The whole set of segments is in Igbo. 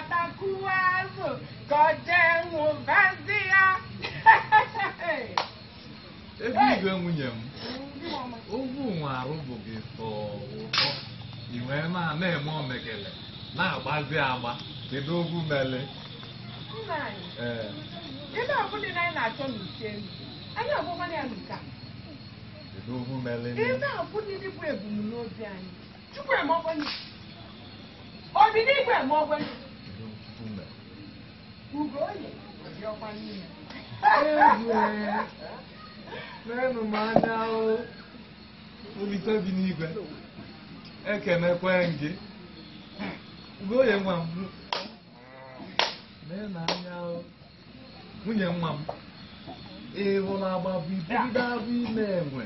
atakuwazo ka ọ ya ebe igwe nwunye m ogwu nwe arụbụ gị ụtọ i wee na-eme omegele na-agbazi agba kedu ogwu mele ebe na anyị na-achọ n'uche ebe bụ ebumnobi anyị chukwu eme akwanye meenụ m anya ahụ olite bi n'igwe ekenekwe gị goye nwa m mee na anya ahụ nwunye nwa m ịhụla agba ibu ibido abụ ime enwe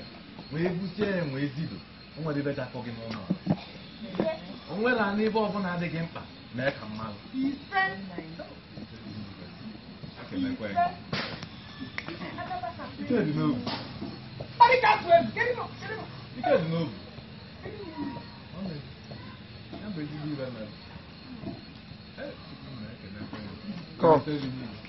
wee busie enwe ezido nwere ibe ga-akọ gị n'ụlọ onwela n'ibe ọbụla adịghị mkpa mee ka mmadụ que Fica de novo. Olha cá, Sueli. Fica de novo. Fica de novo. Fica de novo. Olha aí. Não, mas de mim vai É, tipo, não é que é na cueca. Qual?